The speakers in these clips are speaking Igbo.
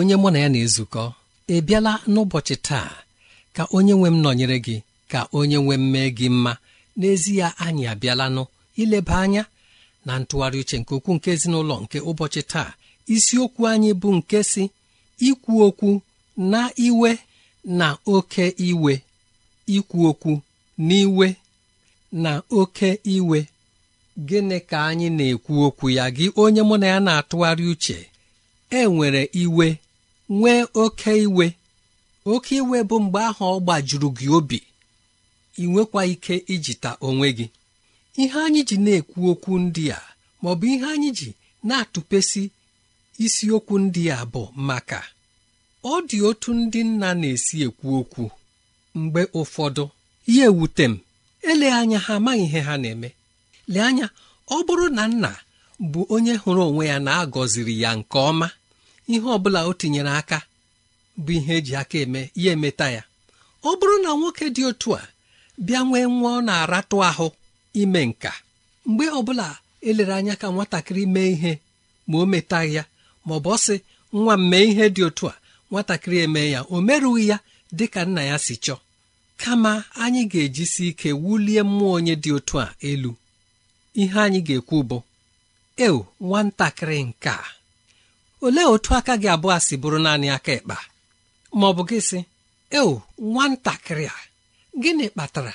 onye mụ na ya na-ezukọ ị bịala n'ụbọchị taa ka onye nwe m nọnyere gị ka onye nwe m mee gị mma n'ezie anyị abịalanụ ileba anya na ntụgharị uche nke okwu nke ezinụlọ nke ụbọchị taa isiokwu anyị bụ nke si ikwu okwu na iwe na oke iwe ikwu okwu n'iwe na oke iwe gịnị ka anyị na-ekwu okwu ya gị onye mụ na ya na-atụgharị uche e nwere iwe nwee oke iwe oke iwe bụ mgbe ahụ ọ gbajuru gị obi ị nwekwa ike ijita onwe gị ihe anyị ji na-ekwu okwu ndị a maọbụ ihe anyị ji na-atụpesi isiokwu ndị a bụ maka ọ dị otu ndị nna na-esi ekwu okwu mgbe ụfọdụ Ihe ewute m ele anya ha amaghị ihe ha na-eme lee anya ọ bụrụ na nna bụ onye hụrụ onwe ya na-agọziri ya nke ọma ihe ọbụla o tinyere aka bụ ihe eji aka eme ya emeta ya ọ bụrụ na nwoke dị otu a bịa nwee nwa ọ na-aratụ ahụ ime nka mgbe ọbụla elere anya ka nwatakịrị mee ihe ma o metaghị ya ma ọ bụ ọsị nwa m mee ihe dị otu a nwatakịrị eme ya o merụghị ya dị ka nna ya si chọọ kama anyị ga-ejisi ike wulie mmụọ onye dị otu a elu ihe anyị ga-ekwu bụ eo nwatakịrị nke a olee otu aka gị abụọ si bụrụ naanị aka ịkpa? ma ọ bụ gị sị eo nwatakịrị a gịnị kpatara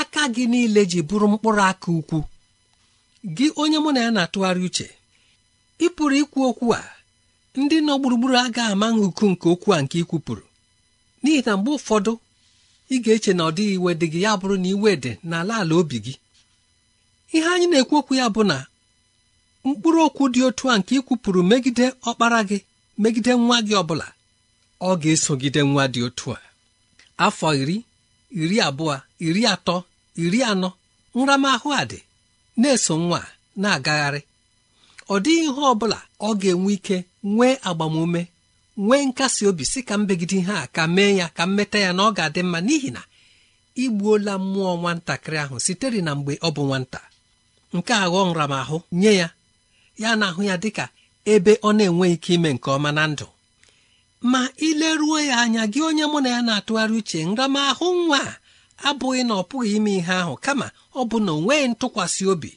aka gị niile ji bụrụ mkpụrụ aka ukwu gị onye mụ na ya na-atụgharị uche ị pụrụ ikwu okwu a ndị nọ gburugburu aga ama nhụku nke okwu a nke ikwupụrụ n'ihi na mgbe ụfọdụ ị ga-eche na ọ dịghị iwe dị gị ya bụrụ na iwe dị n'ala ala obi gị ihe anyị na-ekwu okwu ya bụ na mkpụrụ okwu dị otu a nke ikwupụrụ megide ọkpara gị megide nwa gị ọbụla ọ ga-esogide nwa dị otu a afọ iri iri abụọ iri atọ iri anọ nramahụ a dị na-eso nwa na-agagharị ọ dịghị ihe ọ bụla ọ ga-enwe ike nwee agbamume nwee nkasi obi si ka mbegide ihe a ka mee ya ka mmeta ya na ọ ga-adị mma n'ihi na igbuola mmụọ nwatakịrị ahụ sitere na mgbe ọ bụ nwata nke aghọọ nramahụ nye ya ya na ahụ ya dịka ebe ọ na enweghị ike ime nke ọma na ndụ ma ileruo ya anya gị onye mụ na ya na-atụgharị uche nramahụ nwa abụghị na ọ pụghị ime ihe ahụ kama ọ bụ na o nweghị ntụkwasị obi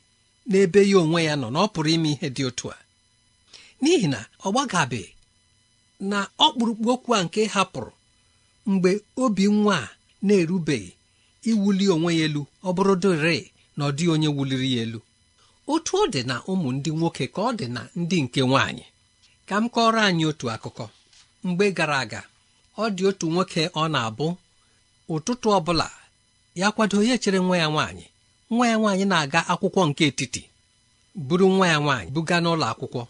n'ebe ya onwe ya nọ na ọ pụrụ ime ihe dị otu a n'ihi na ọ gbagabe na ọkpụrụkpụ okwu a nke hapụrụ mgbe obi nwa a na-erubeghị iwuli onwe ya elu ọ bụrụ dịrị na ọ dịghị onye wuliri ya elu otu ọ dị na ụmụ ndị nwoke ka ọ dị na ndị nke nwaanyị ka m kọrọ anyị otu akụkọ mgbe gara aga ọ dị otu nwoke ọ na-abụ ụtụtụ ọ bụla ya kwado ya chere nwa ya nwaanyị nwa ya nwaanyị na-aga akwụkwọ nke etiti buru nwa ya nwaanyị buga n'ụlọ akwụkwọ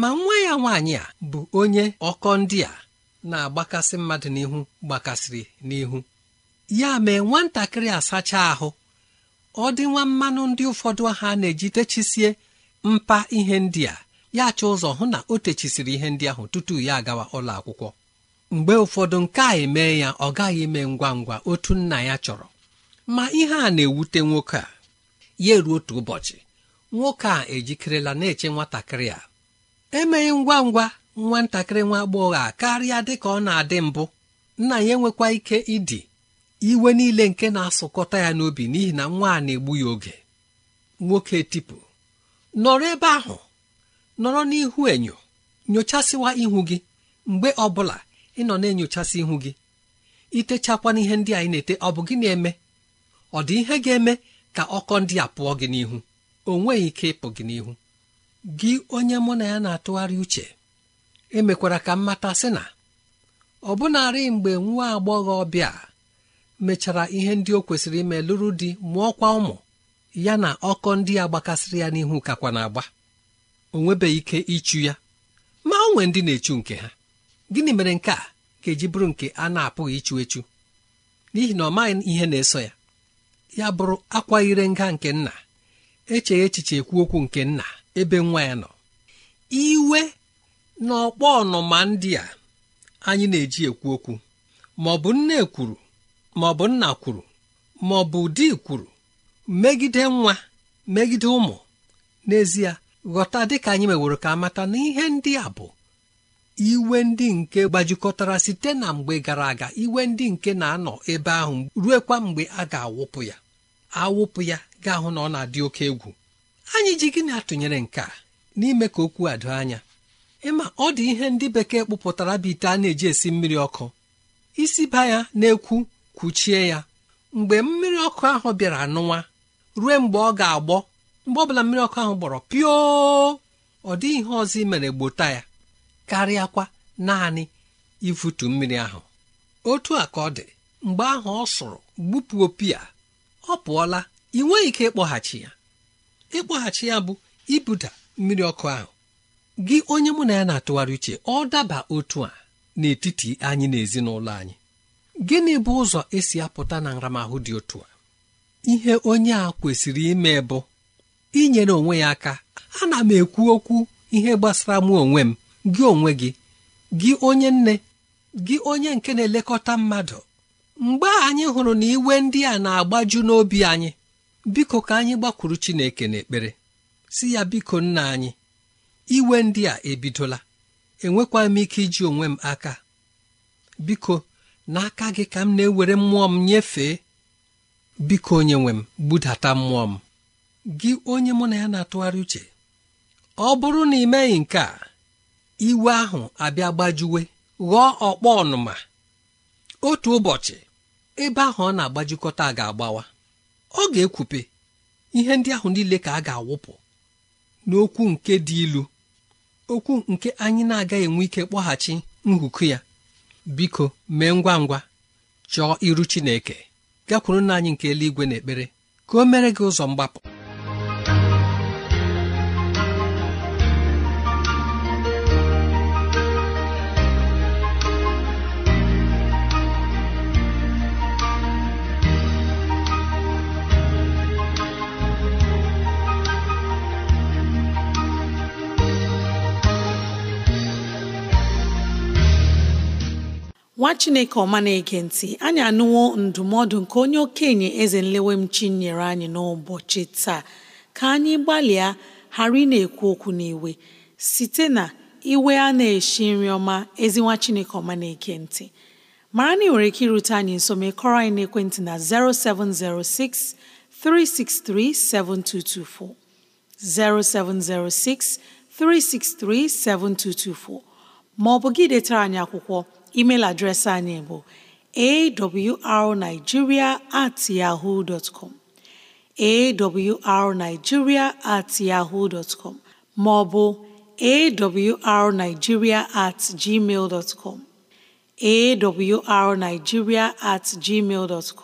ma nwa ya nwaanyị a bụ onye ọkọ ndị a na-agbakasị mmadụ n'ihu gbakasịrị n'ihu ya mee nwatakịrị asacha ahụ ọ dị nwa mmanụ ndị ụfọdụ aha na-eji techisie mpa ihe ndị a ya chọọ ụzọ hụ na o techisiri ihe ndị ahụ tutu ya agawa ụlọ akwụkwọ mgbe ụfọdụ nke a emee ya ọ gaghị eme ngwa ngwa otu nna ya chọrọ ma ihe a na-ewute nwoke a ya eruo otu ụbọchị nwoke a ejikerela na-eche nwatakịrị a emeghị ngwa ngwa nwatakịrị nwa agbọghọ a karịa dị ka ọ na-adị mbụ nna ya enwekwa ike ịdị iwe niile nke na-asụkọta ya n'obi n'ihi na nwa a na-egbu ya oge nwoke tipụ nọrọ ebe ahụ nọrọ n'ihu enyo nyochasịwa ihu gị mgbe ọ bụla ị nọ na-enyochasị ihu gị itechakwa n'ihe ndị anyị na-ete ọ bụ gị na-eme ọ dị ihe ga-eme ka ọkọ ndị a pụọ gị n'ihu o nweghị ike ịpụ gị n'ihu gị onye mụ na ya na-atụgharị uche emekwara ka mmata, sị na ọ bụnarị mgbe nwa agbọghọ ọbịa mechara ihe ndị o kwesịrị ime lụrụ di mụọkwa ụmụ ya na ọkọ ndị a gbakasịrị ya n'ihu kakwa na-agba o ike ịchụ ya ma o nwee ndị na-echu nke ha gịnị mere nke a ga-eji bụrụ nke a na-apụghị ịchụ echu n'ihi na ọ maghị ihe na-eso ya ya bụrụ akwa ire nga nke nna echeghị echiche ekwu okwu nke nna ebe nwa ya nọ iwe na ọkpọ ọnụma ndị a anyị na-eji ekwu okwu ma ọ bụ nne kwuru ma ọ bụ nna kwuru ma ọ bụ di kwuru megide nwa megide ụmụ n'ezie ghọta dịka anyị meworo ka amata na ihe ndị a bụ iwe ndị nke gbajikọtara site na mgbe gara aga iwe ndị nke na-anọ ebe ahụ ruekwa mgbe a ga-awụpụ ya awụpụ ya ga-ahụ na ọ na-adị oke egwu anyị ji gịnị atụnyere nke a n'ime ka okwu a doo anya ịma ọ dị ihe ndị bekee kpụpụtara bụ ite a na-eji esi mmiri ọkụ isi ba ya na-ekwu kwuchie ya mgbe mmiri ọkụ ahụ bịara nụwa ruo mgbe ọ ga-agbọ mgbe ọbụla mmiri ọkụ ahụ gbọrọ pio ọ dịghị ihe ọzọ mere gbota ya karịakwa naanị ifutu mmiri ahụ otu a ka ọ dị mgbe ahụ ọ sụrụ gbupụ opi a ọ pụọla ị nweghị ike ịkpọghachi ya ịkpọghachi ya bụ ibuda mmiri ọkụ ahụ gị onye mụ na ya na-atụgharị uche ọ daba otu a n'etiti anyị na ezinụlọ anyị gịnị bụ ụzọ esi apụta na nramahụ dị otu a ihe onye a kwesịrị ime bụ inyere onwe ya aka ana m ekwu okwu ihe gbasara mụ onwe m gị onwe gị gị onye nne gị onye nke na-elekọta mmadụ mgbe anyị hụrụ na iwe ndị a na-agbaju n'obi anyị biko ka anyị gbakwuru Chineke n'ekpere si ya biko nna anyị iwe ndị a ebidola enwekwa m ike iji onwe m aka biko n'aka gị ka m na-ewere mmụọ m nyefee biko onye nwe m budata mmụọ m gị onye mụ na ya na-atụgharị uche ọ bụrụ na ị meghị nke a iwe ahụ abịa gbajuwe ghọọ ọkpọ ọnụma otu ụbọchị ebe ahụ ọ na-agbajikọta ga-agbawa ọ ga-ekwupe ihe ndị ahụ niile ka a ga-awụpụ n'okwu nke dị ilu okwu nke anyị na-agaghị enwe ike kpọghachi nhụkụ ya biko mee ngwa ngwa chọọ iru Chineke gakwuru na anyị nke eluigwe na ekpere ka o mere gị ụzọ mgbapụ nwa chineke ọma na-ege ntị anyị anụwo ndụmọdụ nke onye okenye eze nlewemchi nyere anyị n'ụbọchị taa ka anyị gbalịa ghara ị na-ekwu okwu n'iwe site na iwe a na-eshi nri ọma ezi nwa chineke ọma na-ege ntị mara na ị nwere ike irute anyị nso ma kọrọ anyị n'ekwentị na 0706 363 7224 0706 363 7224 ma bụ gị detara anyị akwụkwọ email adreesị anyị bụ awrnigeria at yahoo dot com awrnigeria at yahoo dot com maọbụ awrnigeria at gmail dot com at gmail dot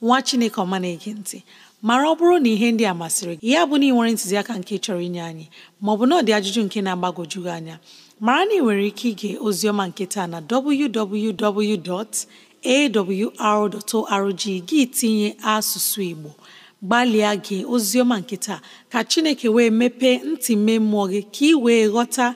nwa chineke ọma na-ege ntị mara ọ bụrụ na ihe ndị a masịrị gị ya bụ na ị nwere ntụziaka nke chọrọ inye anyị maọbụ na ọ dị ajụjụ nke na-agbagwoju anya mara na ị nwere ike ige ozioma nketa na www.awr.org gị tinye asụsụ Igbo gbalịa gee ozioma nketa ka Chineke wee mepee ntị mee mmụọ gị ka ị wee ghọta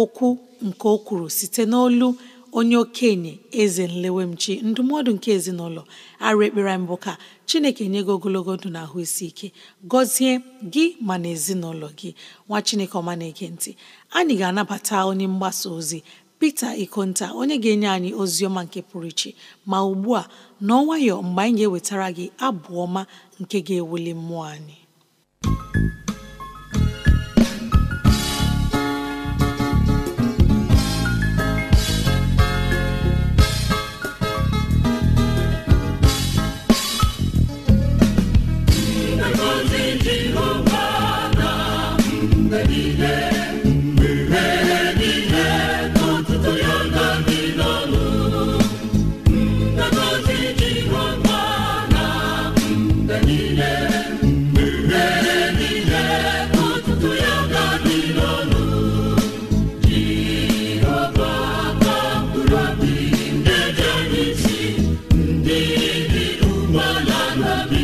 okwu nke o kwuru site n'olu onye okenye eze nlewemchi ndụmọdụ nke ezinụlọ arụ ekpere mbụ ka chineke nye gị ogologo ndụ na ahụ isi ike gọzie gị ma na ezinụlọ gị nwa chineke ọma na ekentị anyị ga-anabata onye mgbasa ozi Pita Ikonta onye ga-enye anyị ozi ọma nke pụrụ iche ma ugbu a n'ọnwayọ mgbe anyị ga-ewetara gị abụ ọma nke ga-ewuli mmụọ anyị never be.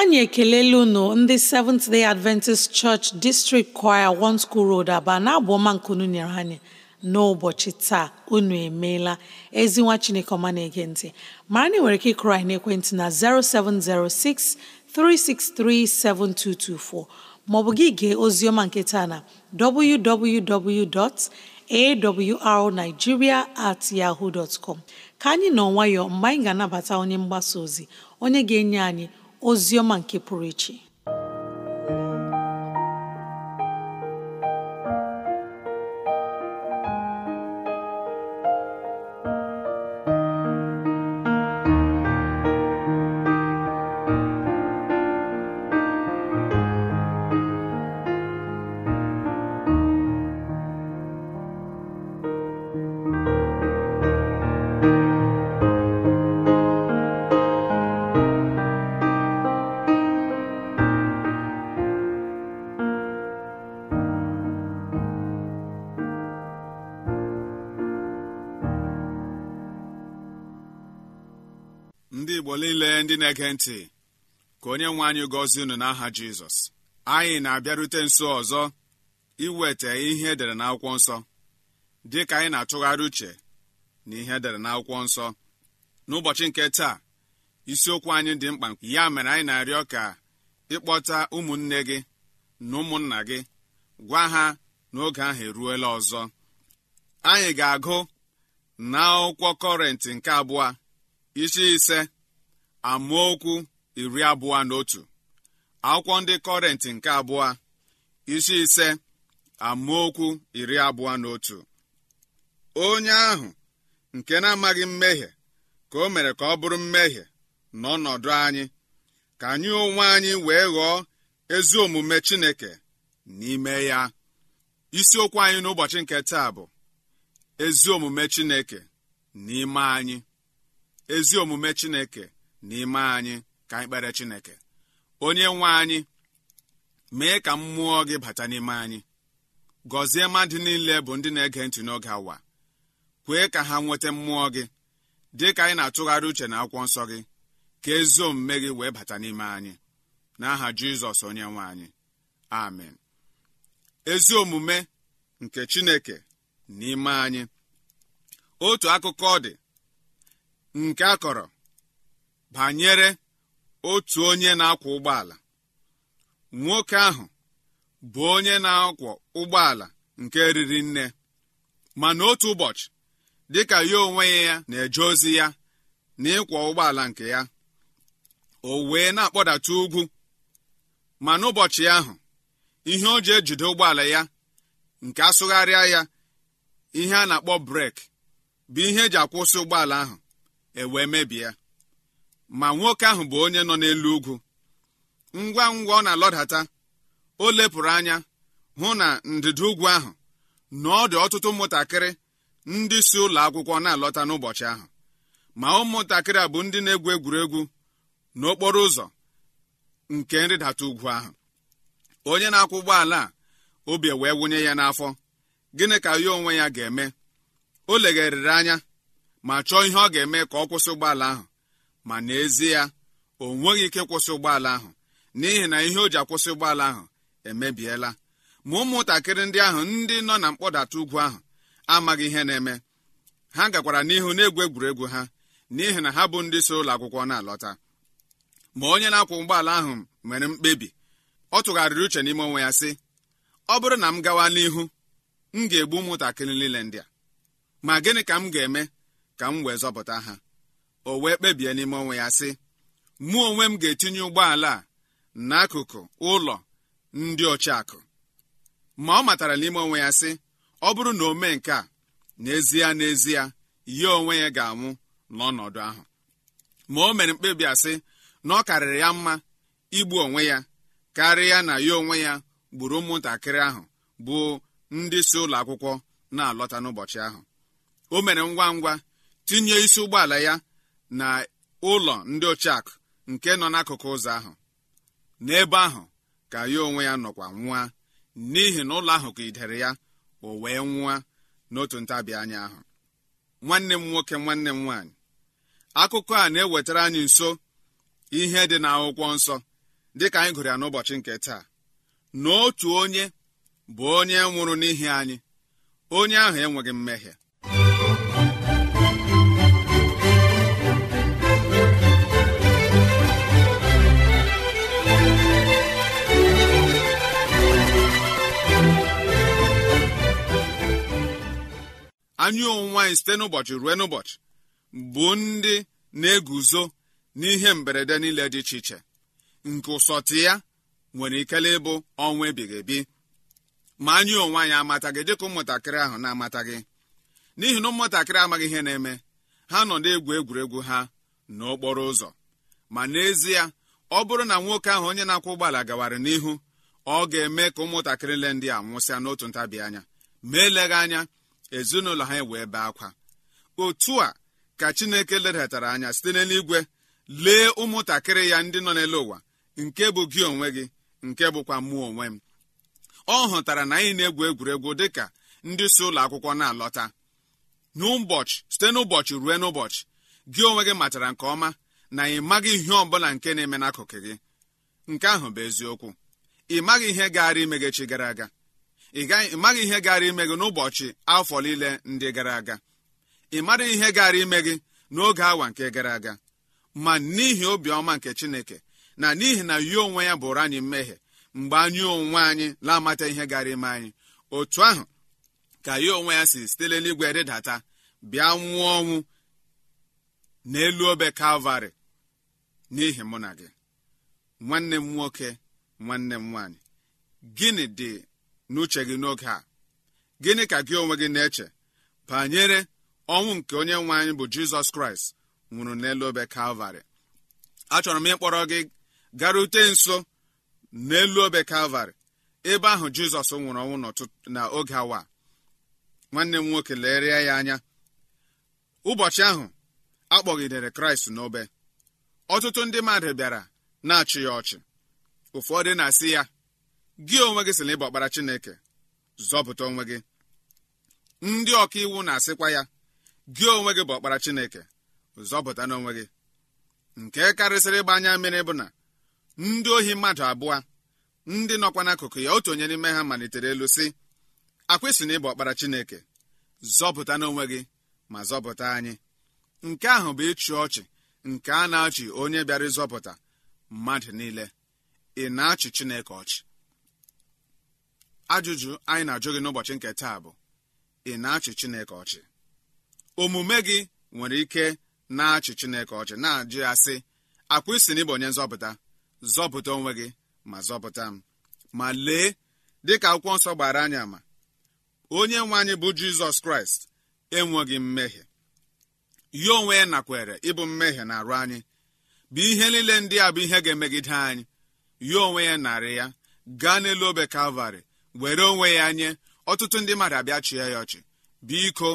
anyị ekelela unu ndị Seventh Day Adventist Church District Choir One School Road Aba na abụ ọma nyere anyị n'ụbọchị taa unu emeela ezi nwa Chineke ọma na-ege ntị mara na nwere ike ịkụrụ anyị n'ekwentị na 7224 maọbụ gị gee oziọma nke taa na www.awrnigeria at yahoo dot com ka anyị nọ nwayọọ mgbe anyị ga-anabata onye mgbasa ozi onye ga-enye anyị ozi ọma nke pụrụ iche igbo niile ndị na-ege ntị ka onye nwe anyị gọzie unu n'aha jizọs anyị na-abịarute nso ọzọ iweta ihe edere n'akwụkwọ nsọ dị ka anyị na-atụgharị uche na ihe edere n'akwụkwọ nsọ n'ụbọchị nke taa isiokwu anyị dị mkpa ya mere anyị na-arịọ ka ịkpọta ụmụnne gị na ụmụnna gị gwa ha n'oge ahụ eruola ọzọ anyị ga-agụ na kọrentị nke abụọ isi ise amaokwu iri abụọ na otu akwụkwọ ndị kọrentị nke abụọ isi ise amaokwu iri abụọ na otu onye ahụ nke na-amaghị mmehie ka o mere ka ọ bụrụ mmehie n'ọnọdụ anyị ka anyị onwe anyị wee ghọọ ezi omume Chineke n'ime ya isiokwu anyị n'ụbọchị nke taa bụ ezi omume Chineke n'ime anyị ezi omume Chineke n'ime anyị ka anyị kpere chineke onye nwe anyị mee ka mmụọ gị bata n'ime anyị gọzie mmadụ niile bụ ndị na-ege ntị n'oge awa kwee ka ha nweta mmụọ gị dị ka anyị na-atụgharị uche na akwụkwọ nsọ gị ka ezi omume gị wee bata n'ime anyị n'aha jizọs onye nwe anyị amen ezi omume nke chineke n'ime anyị otu akụkọ dị nke a kọrọ banyere otu onye na-akwọ ụgbọala nwoke ahụ bụ onye na-akwọ ụgbọala nke riri nne mana otu ụbọchị dịka ya onwe ya na-eje ozi ya na ịkwọ ụgbọala nke ya o wee na-akpọdata ugwu mana ụbọchị ahụ ihe o ji ejide ụgbọala ya nke asụgharịa ya ihe a na-akpọ breki bụ ihe eji akwụsị ụgbọala ahụ e wee mebie ma nwoke ahụ bụ onye nọ n'elu ugwu ngwa ngwa ọ na-alọdata o lepụrụ anya hụ na ndịda ugwu ahụ na ọ dị ọtụtụ ụmụntakịrị ndị si ụlọ akwụkwọ na-alọta n'ụbọchị ahụ ma ụmụntakịrị a bụ ndị na-egwu egwuregwu n'okporo ụzọ nke nrịdata ugwu ahụ onye na-akwụ ụgbọala a obi wee wụnye ya n'afọ gịnị ka ya onwe ya ga-eme o legharịrị anya ma chọọ ihe ọ ga-eme ka ọ kwụsị ụgbọala ahụ ma n'ezie o nweghị ike kwụsị ụgbọala ahụ n'ihi na ihe o ji akwụsị ụgbọala ahụ emebiela ma ụmụntakịrị ndị ahụ ndị nọ na mkpọdata ugwu ahụ amaghị ihe na-eme ha gakwara n'ihu na-egwu egwuregwu ha n'ihi na ha bụ ndị so ụlọ akwụkwọ na-alọta ma onye na-akwụ ụgbọala ahụ nwere mkpebi ọ tụgharịrị uche n'ime onwe ya sị ọ bụrụ na m gawa n'ihu m ga-egbu ụmụntakịrị niile ndị a ma gịnị ka m ga-eme ka m wee zọpụta ha o wee kpebie n'ime onwe ya sị mụ onwe m ga-etinye ụgbọala a n'akụkụ ụlọ ndị ọchịakụ ma ọ matara n'ime onwe ya sị ọ bụrụ na o mee nke a n'ezie n'ezie ya onwe ya ga-anwụ n'ọnọdụ ahụ ma o mere mkpebi asị na ọ karịrị ya mma igbu onwe ya karịa na ya onwe ya gburu ụmụntakịrị ahụ bụ ndị si ụlọ akwụkwọ na-alọta n'ụbọchị ahụ o mere ngwa ngwa tinye isi ụgbọala ya na ụlọ ndị akụ nke nọ n'akụkụ ụzọ ahụ n'ebe ahụ ka ya onwe ya nọkwa nwa n'ihi na ụlọ ahụ ka idere ya o wee nwụa n'otu ntabi anya ahụ nwanne m nwoke nwanne m nwaanyị akụkọ a na-ewetara anyị nso ihe dị n'akwụkwọ nsọ dịka anyị gụrụ ya n'ụbọchị nke taa na onye bụ onye nwụrụ n'ihi anyị onye ahụ enweghị mmehie anyị onwe anyị site n'ụbọchị ruo n'ụbọchị bụ ndị na-eguzo n'ihe mberede niile dị iche iche nke ụsọtụ ya nwere ikele ịbụ ọnwa ebighị ebi ma anyị onwe anyị amataghị dịka ụmụntakịrị ahụ na-amataghị n'ihi na ụmụntakịrị amaghị ihe na-eme ha nọ na-egwu egwuregwu ha n'okporo ụzọ ma n'ezie ọ bụrụ na nwoke ahụ onye na-akwụ ụgbọala gawara n'ihu ọ ga-eme ka ụmụntakịrị le ndị a nwụsịa n'otu ntabi anya ma eleghị anya ezinụlọ ha wee bee akwa otu a ka chineke ledatara anya site n'eluigwe lee ụmụntakịrị ya ndị nọ n'elu ụwa nke bụ gị onwe gị nke bụkwa mụ onwe m ọ hụtara na anyị na-egwu egwuregwu dịka ndị si ụlọ akwụkwọ na-alọta n'ụbọchị site n'ụbọchị ruo n'ụbọchị gị onwe gị matara nke ọma na ị maghị ihe bụla nke na-eme n'akụkụ gị nke ahụ bụ eziokwu ị maghị ihe gaara imegechi gara aga ị maghị ihe gara ime gị n'ụbọchị afọ niile ndị gara aga ị mara ihe gara ime gị n'oge awa nke gara aga ma n'ihi obiọma nke chineke na n'ihi na yi onwe ya bụrụ anyị mmehie mgbe anyị onwe anyị na-amata ihe gara ime anyị otu ahụ ka ya onwe ya si sitele n'igwe rịdata bịa nwụọ ọnwụ n'elu obe kalvarị n'ihi mụ na gị nwanne m nwoke nwanne m nwaanyị gịnị dị n'uche gị n'oge a gịnị ka gị onwe gị na-eche banyere ọnwụ nke onye nwe anyị bụ jizọs kraịst nwụrụ n'elu obe kalvarị achọrọ m ịkpọrọ gị garute nso n'elu obe kalvarị ebe ahụ jizọs nwụrụ ọnwụ na oge awa nwanne m nwoke leere ya anya ụbọchị ahụ akpọgidere kraịst n'obe ọtụtụ ndị mmadụ bịara na-achị ya ọchị ụfọdụ na-asị ya gị onwe gị sị na ịbụ ọkpara chineke zọpụta onwe gị ndị ọka iwu na-asịkwa ya gị onwe gị bụ ọkpara chineke zọpụta n'onwe gị nke karịsịrị ịgba anya mmiri bụ na ndị ohi mmadụ abụọ ndị nọkwa n'akụkụ ya otu onye n'ime ha malitere elu sị akwịsị na ịbụ ọkpara chineke zọpụta n'onwe gị ma zọpụta anyị nke ahụ bụ ịchị ọchị nke a na-achị onye bịara ịzọpụta mmadụ niile ị na-achị chineke ọchị ajụjụ anyị na-ajụ gị n'ụbọchị nke taa bụ ị na-achị Chineke ọchị omume gị nwere ike na-achị Chineke ọchị na-ajụ ya sị akwa isi na onye nzọpụta zọpụta onwe gị ma zọpụta m ma lee dịka akwụkwọ nsọ gbara anyị ama onye nwe anyị bụ Jizọs Kraịst enweghị mmehie ya onwe ya nakwere ịbụ mmehie na arụ anyị bụ ihe niile ndị a bụ ihe ga-emegide anyị ya onwe ya narị ya gaa n'elu obe Kalvarị were onwe ya nye ọtụtụ ndị mmadụ abịa chịa ya ọchị biko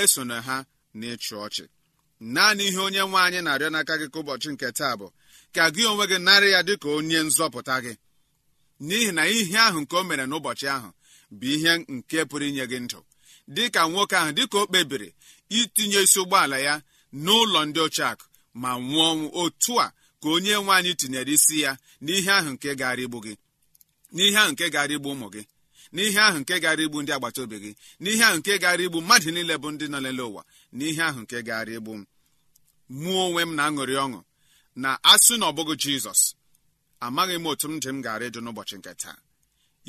esona ha na ịchụ ọchị naanị ihe onye nwe anyị na-arịọ n'aka gị ka ụbọchị nke taa bụ ka gị onwe gị narị ya dịka onye nzọpụta gị n'ihi na ihe ahụ nke o mere n'ụbọchị ahụ bụ ihe nke pụrụ inye gị ndụ dị ka nwoke ahụ dịka o kpebiri itinye isi ụgbọala ya n'ụlọ ndị ochiakụ ma nwụọ ọnwụ otu a ka onye nwe anyị tinyere isi ya n'ihe ahụ nke gara igbu gị n'ihe ahụ nke igbu ụmụ gị n'ihe ahụ nke gara igbu ndị agbata obi gị n'ihe ahụ nke gara igbu mmadụ niile bụ ndị nọ lele ụwa n'ihe ahụ nke gara igbu mụọ onwe m na-aṅụrị ọṅụ na asụ na ọbụghị jizọs amaghị m otu m dị m gara ịjụ n'ụbọchị nke taa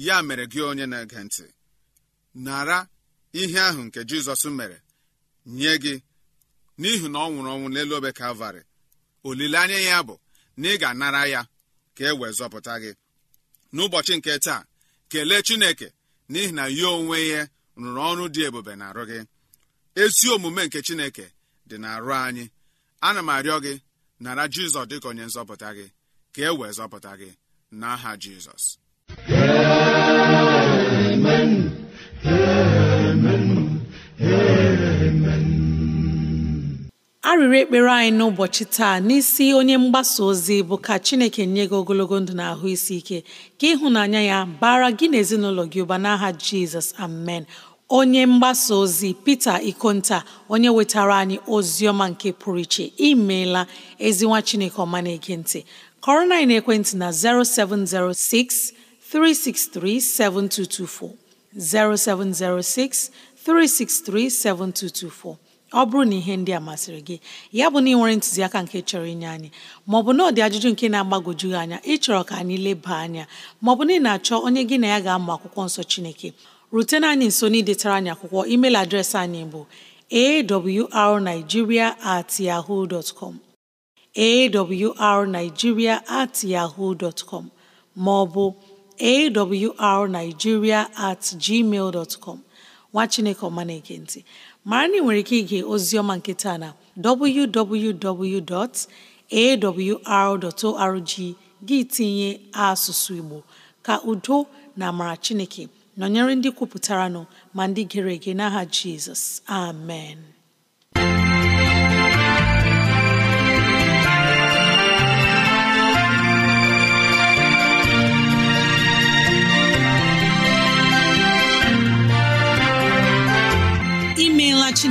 ya mere gị onye na-ege ntị nara ihe ahụ nke jizọs mere nye gị n'ihi na ọ nwụrụ ọnwụ n'elu obe kalvarị olileanya ya bụ na ị ga-anara ya ka e wee zọpụta gị n'ụbọchị nke taa kelee chineke n'ihi na ya onwe ya rụrụ ọrụ dị ebube na arụ gị ezi omume nke chineke dị na arụ anyị ana m arịọ gị nara jizọs dịka onye nzọpụta gị ka e wee zọpụta gị n'aha jizọs Amen. Amen. Amen. arịrị ekpere anyị n'ụbọchị taa n'isi onye mgbasa ozi bụ ka Chineke nye gị ogologo ndụ na ahụ isi ike ka ịhụnanya ya bara gị na ezinụlọ gị ụba n'aha Jizọs amen onye mgbasa ozi Pita Ikonta onye wetara anyị ozi ọma nke pụrụ iche imeela ezinwa Chineke ọma na-ege ntị kọrọ na ekwentị na 0706 363 7224 0706 363 7224 ọ bụrụ na ihe ndị a masịrị gị ya bụ na ị nwere ntụziaka nke chọrọ inye anyị maọbụ na ọ dị ajụjụ nke na-agbagwoju gị anya ịchọrọ ka anyị leba anya maọbụ na ị na-achọ onye gị na ya ga-amụ akwụkwọ nsọ Chineke rutena anyị nso n'idetara anyị akwụkwọ email adreesị anyị bụ awrnigeria at yahoo dot com awrnigeria at yahoo dot com maọbụ awrnigeria at gmail dot com nwa Chineke ọmana na ntị mara na ị nwere ike ige oziọma nke taa na www.awr.org gị tinye asụsụ Igbo ka udo na amara Chineke nọnyere ndị kwupụtara nọ ma ndị gere ege n'aha Jizọs amen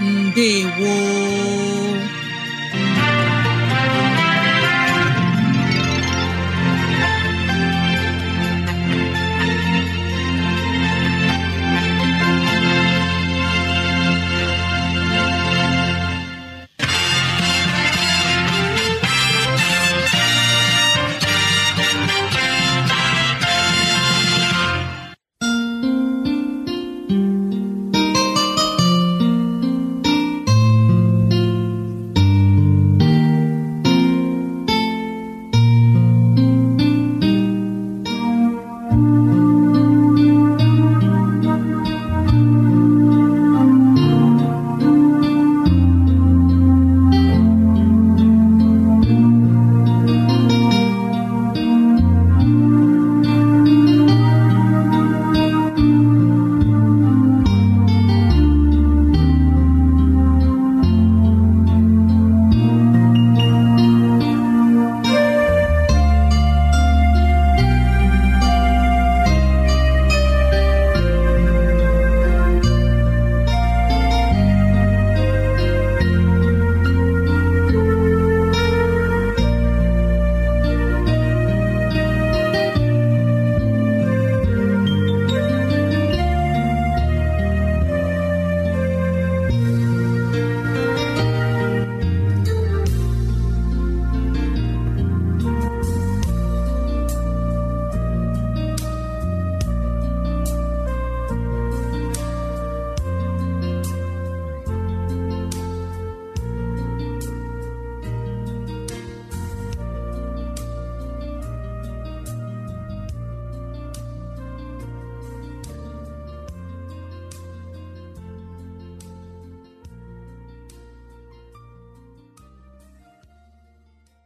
ndewo